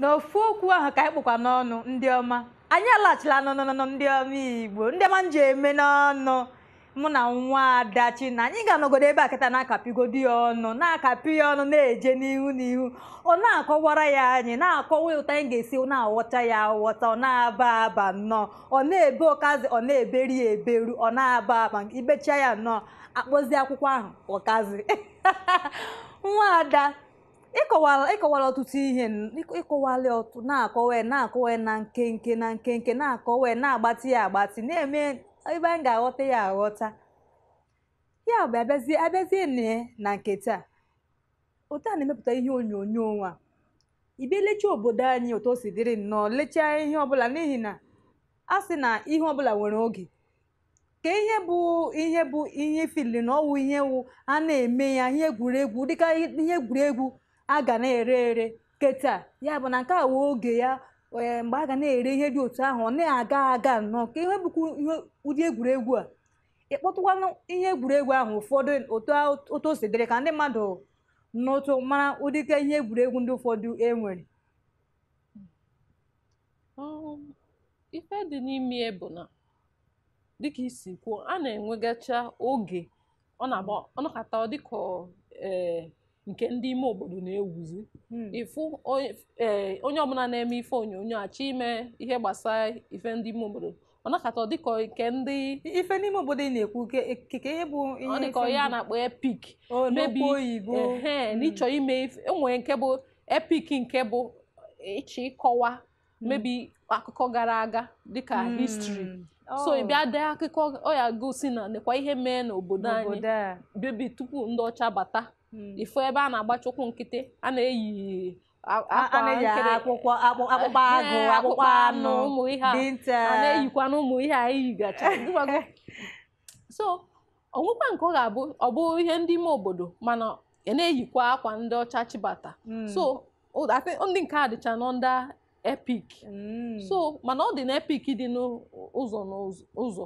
n'ofu okwu ahụ ka anyị kpụkwa n'ọnụ ndị ọma anyị alaghachila n'ọnụnụ ndị ọma igbo ndị ọma m ji eme n'ọnụ mụ na nwa adachi na anyị ga-anọgodo ebe a kịta na-akapigodi ya ọnụ na-akapị ya ọnụ na-eje n'ihu n'ihu ọ na-akọwara ya anyị na-akọwa ụtọ anyị ga-esi na-aghọta ya aghọta ọ na-aba aba nnọọ ọ na-ebe ọkazi ọ na-eberi ya eberu ọ na-aba aba ibecha ya nnọọ akpọzi akwụkwọ ahụ ọkazi nwa ada ịkọwala ịkọwala ọtụtụ ihe ịkọwala ọtụ na-akọwa na-akọwa na nkenke na nkenke na-akọwa na-agbatị ya agbatị na-eme ebe anyị ga-aghọta ya aghọta ya bụ abịazie abịazie na nke taa otu a na-emepụta ihe onyonyo nwa ibia lechaa obodo anyị otu o si dịrị nnọọ lechaa ihe ọbụla n'ihi na a sị na ihe ọbụla nwere oge ka ihe bụ ihe bụ ihe fili na ọwụ ihe wụ a na-eme ya ihe egwuregwu dịka ihe egwuregwu a ga na-ere ere keta ya bụ na nke a wee oge ya eh, mgbe a ga na-ere ihe dị otu ahụ ọ na-aga aga nnọọ ka ihe bụkwa ụdị egwuregwu a ịkpọtụkwanụ ihe egwuregwu ahụ ụfọdụ otu o si ka ndị mmadụ n'ụtụ mara ụdịka ihe egwuregwu ndị ụfọdụ e nwere um, ife dị n'ime bụ dịka isi kwuo a na-enwegacha oge ọ na-agba dịka ee eh, nke ndị ime obodo na-ewuzi hmm. ịfụ e, onye ọbụla na-eme ife onyonyo achọ ime ihe gbasara ife ndị ime obodo ọ nakọta dịka nke ndị ife n'ime obodo ị na-ekwu keke ihe bụ ọ dịkọ ya na-akpọ epik mebi hmm. n'ịchọ ime enwere e nke bụ epik nke bụ ịchọ ịkọwa mebi hmm. akụkọ gara aga dịka histri oh. so ị bịa dee akụkọ ọ ya gosi na nekwa ihe mee n'obodo anyị bebi tupu ndị ọcha bata Hmm. ifo ebe a na-agbachi ụkwụ nkịtị a na-eyi akpụkpọ eh, agụ akpụkpọ anụ na-eyikwa na ụmụ ihe a yigacha so onwekwa nke ọ ga-abụ ọ bụ ihe ndị ime obodo mana ị e na-eyikwa akwa ndị ọcha chibata hmm. so ndị nke a dịcha nọ ndị epik hmm. so mana ọ dị na epik dị n'ụzọ n'ụzọ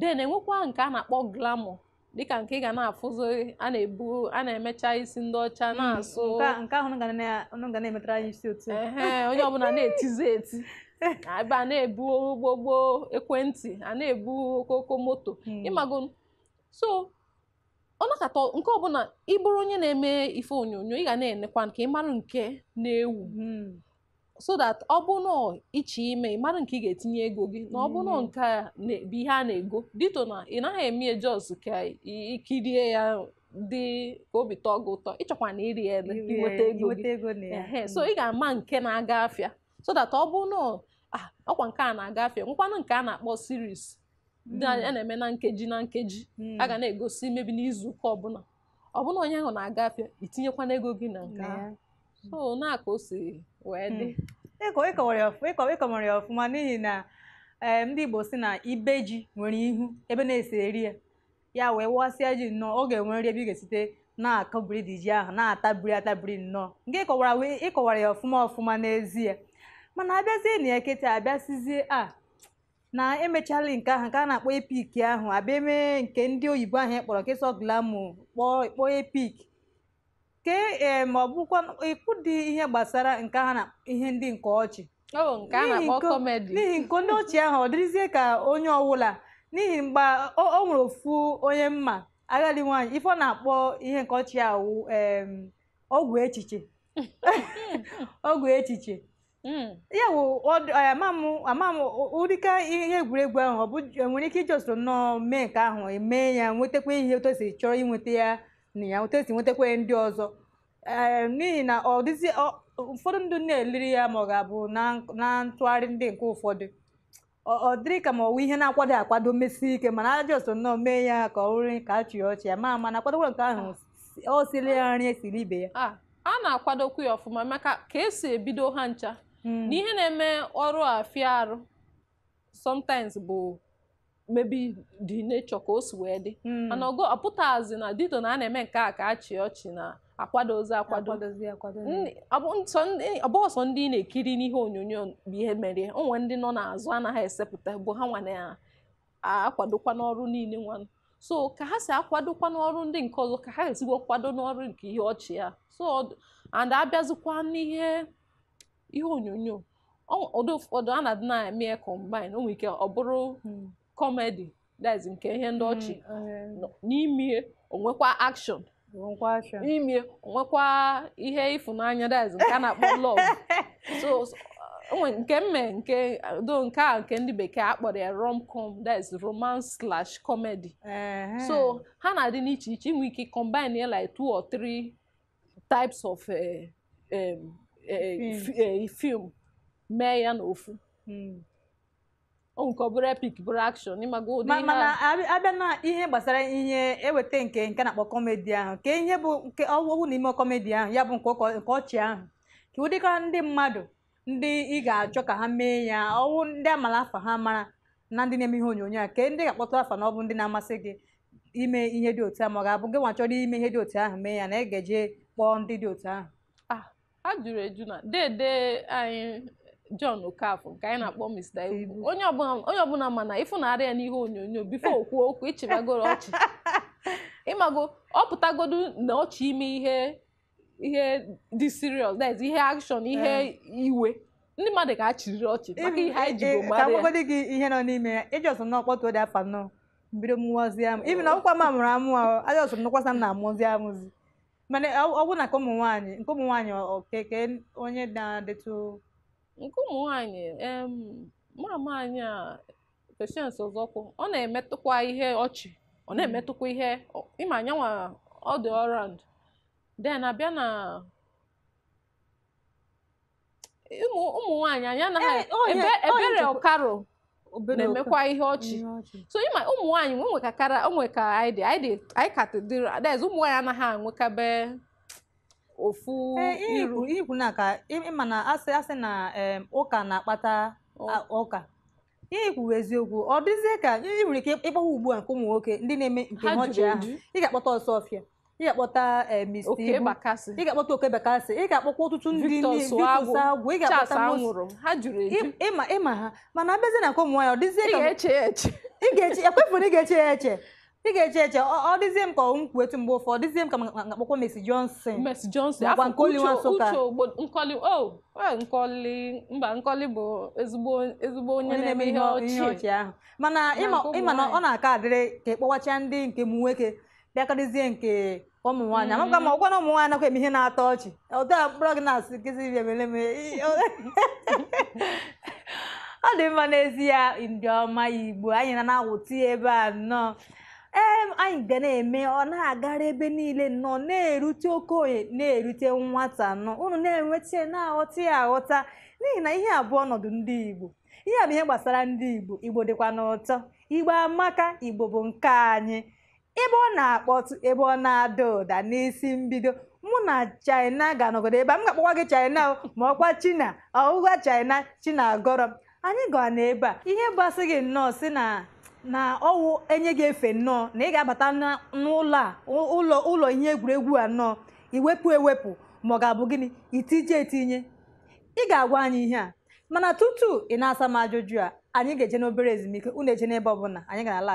then enwekwa nke a na-akpọ glamọ dịka nke ị ga na-afụzụ a na-ebu a na-emecha isi ndị ọcha hmm, na-asụ nke ahụ na-emetara anyị isi otu onye ọbụla na-etizi eti ebe a na-ebu gbogbo ekwentị a na-ebu okooko moto hmm. ịmago so ọ nakọta nke ọbụla ịbụrụ onye na-eme ife onyonyo ị ga na-enekwa nke ịmarụ nke na-ewu hmm. so that ọ bụna iche ime ịmara nke ị ga-etinye ego gị na ọ bụna mm-hmm. nke bụ ihe a na-ego dito na ị naghị eme jos ka ikirie ya dị ka obi tọọ gị ụtọ ịchọkwa na iri ele inweta ego gị mm-hmm. so ị ga-ama nke na-aga afịa so that ọ ọkwa nke a na-aga afịa nkwanụ nke a na-akpọ siris mm-hmm. a na-eme na nkeji na nkeji a ga na-egosi mebi n'izuụka ọbụla ọbụna onye ahụ na-aga afịa itinyekwana ego gị na nke ahụ so na-aka o wee dị ịkọwarị ọfụma n'ihi na ee eh, ndị Igbo si na ibe ji nwere ihu ebe na-esi eri ya ya wee wasịa ji nnọọ oge nwere nri ebe ị ga-esite na-akọbiri dị ji ahụ na-atabiri atabiri nnọọ nke ịkọwara ịkọwara ya ọfụma ọfụma n'ezie mana abịazie na ya kịta abịasịzie a na emechala nke ahụ nke a na-akpọ epik ahụ abịa emee nke ndị oyibo ahụ kpọrọ nke sọ glamu kpọọ kpọọ epik ke eh, ma ọ bụkwa ịkpụ dị ihe gbasara nke ha na ihe ndị nke ọchị n'ihi nke ndị ọchị ahụ ọ dịrịzie ka onye ọwụla n'ihi mgbe o nwere ofu onye mma agadi nwaanyị ife ọ na-akpọ ihe nke ọchị ahụ ọgwụ echiche ọgwụ echiche hmm. ya bụ ama m ụdịka ihe egwuregwu ahụ ọ bụ e nwere ike ijọsoro nnọọ mee nke ahụ emee ya nwetakwa ihe otu esiri chọrọ inweta ya na ya otu esi nwetakwa ndị ọzọ n'ihi na ọ dịzi ụfọdụ ndụ na-eliri ya ma ọ ga-abụ na ntụgharị ndị nke ụfọdụ ọ dịrị ka ma ọwụ ihe na-akwado akwado mesie ike mana ajọ so nnọọ mee ya ka ọ rụrụ ka a chịrị ọchị ya ma mana akwadokwara nke ahụ ọ siri ya nri esiri ibe ya a na-akwadokwu ya ọfụma maka ka esi ebido ha ncha hmm. na ihe na-eme ọrụ a fịa arụ sometimes bụ mebi di nature ka o si wee dị hmm. mana ogo ọpụtazi na dito na a na-eme nke a ka a chịa ọchị na akwadozi akwado ọbọsọ ndị na-ekiri n'ihe onyonyo bụ ihe mere onwe ndị nọ n'azụ anaghị esepụta bụ ha nwa na-akwadokwa n'ọrụ niile nwanụ so ka ha si akwadokwa n'ọrụ ndị nke ọzọ ka ha ezigbo kwado n'ọrụ nke ihe ọchị ya so and abịazikwa n'ihe ihe onyonyo ụfọdụ a na-adị na-eme combine o nwere ike ọ bụrụ hmm. kọmedi that's nke ihe ndị ọchị mm, n'ime onwekwa akshọn n'ime onwekwa ihe ịfụnanya ndị nke a na-akpọ love nke mme nke do nke a nke ndị bekee akpọrọ ya rom com that's romance slash comedy so ha na-adị n'iche iche inwe ike combine like two or three types of eh, eh, eh, film mee ya n'ofu. Hmm. o nke ọ bụrụ epic bụrụ action ịmaga ụdị ihe mana abịa na ihe gbasara ihe eweta nke nke na-akpọ kọmedi ahụ ka ihe bụ nke ọwụwụ n'ime kọmedi ahụ ya bụ nke ọchị ahụ ka ụdịka ndị mmadụ ndị ị ga-achọ ka ha mee ya ọwụ ndị amala afa ha mara na ndị na-eme ihe onyonyo a ka ndị ga akpọta afa na ọ bụ ndị na-amasị gị ime ihe dị otu ahụ ma ọ ga-abụ gị nwa chọrọ ime ihe dị otu ahụ mee ya na ị ga kpọọ ndị dị otu ahụ ah, jụrụ eju na dede anyị John Okafor nke anyị na-akpọ Mr. Ibu onye ọbụla ma na ịfụnarị ya n'ihe onyonyo bifo okwu okwu ịchịbagoro ọchị ịmago ọ pụtagodu na ọchị ime ihe ihe dị serious that ihe akshọn ihe iwe ndị mmadụ ga achịrịrị ọchị maka ihe anyị jigo e, e, mara ya agwagodi gị ihe nọ n'ime ya ịjọs n'ọkpọtụ ode afa nọ mbido mụwazi amụ ibi na ọkwa m amụrụ amụ ajọs m nọkwasa m na-amụzi amụzi mana ọ bụ na nke ụmụ nwaanyị nke ụmụ nwaanyị okeke onye na-adịtụ Nke ụmụ nwaanyị um mama anyị a Patience Ụzọkwụ ọ na-emetụkwa ihe ọchị ọ hmm. na-emetụkwa ihe ịma anyanwa ọ dị ọrand den abịa na ụmụ ụmụ nwaanyị anyị anaghị ebere ọkaro na-emekwa ihe ọchị so ịma ụmụ nwaanyị nwe nwekakara onwe ka anyị dị anyị ka dị ụmụ nwaanyị anaghị anwekabe ofu eh, ikwu na ka ịma na asị asị na ụka na-akpata ụka ihe kwuwe eziokwu ọ dịzie ka ị nwere ike ịkpọwa ugbu a nke ụmụ nwoke ndị na-eme nke ọchị ahụ ị ga-akpọta ọsọfịa ị ga-akpọta eh, Mr. Ibu ị ga-akpọta Oke Bakasị ị ga-akpọkwa ọtụtụ ndị agwụ ị ga-akpọta ịma ha mana abịazie na nke ụmụ nwaanyị ọ dịzie ka ị ga-eche ya eche ị ga eche eche ọ dịzie m ka ọ kwu etu mgbe ụfọdụ dịzie m ka na akpọkwa Mercy Johnson Mercy Johnson nakwa Nkoli Nwansụka nkọli mba Nkoli bụ ezigbo onye na-eme ihe ọchị ahụ mana ịma na ọ na-aka adịrị ka ịkpọwacha e ndị nke m nwoke bịakọrịzie nke ụmụ nwanyị amaka mm-hmm. ma ọgwa na ụmụ nwanyị nakwa eme ihe na-atọ ọchị otu a mkpụrụ gị na-asị gịzi bịa mere ọ dị mma n'ezie ndị ọma Igbo anyị na na-awụti ebe a nnọọ anyị ga na-eme ọ na-agara ebe niile nọ na-erute okenye na-erute nwata nọ unu na-enweta na-aghọta ya aghọta n'ihi na ihe abụọ ọnọdụ ndị Igbo ihe a bụ ihe gbasara ndị Igbo Igbo dịkwa n'ụtọ Igbo amaka Igbo bụ nke anyị ebe ọ na-akpọtụ ebe ọ na-ada ụda n'isi mbido mụ na China ga-anọgide ebe a m ga-akpọkwa gị China ma ọkwa China ọwụwa China China agọrọ anyị gaa na ebe a ihe gbasị gị nnọọ si na na ọwụ enye gị efe nnọọ na ị ga-abata n'ụlọ a ụlọ ụlọ ihe egwuregwu a nnọọ iwepụ ewepụ ma ọ ga-abụ gịnị itinye etinye ị ga-agwa anyị ihe a mana tutu ị na-asa m ajụjụ a anyị ga-eje n'obere ezumike unu eje n'ebe ọbụla anyị ga-ala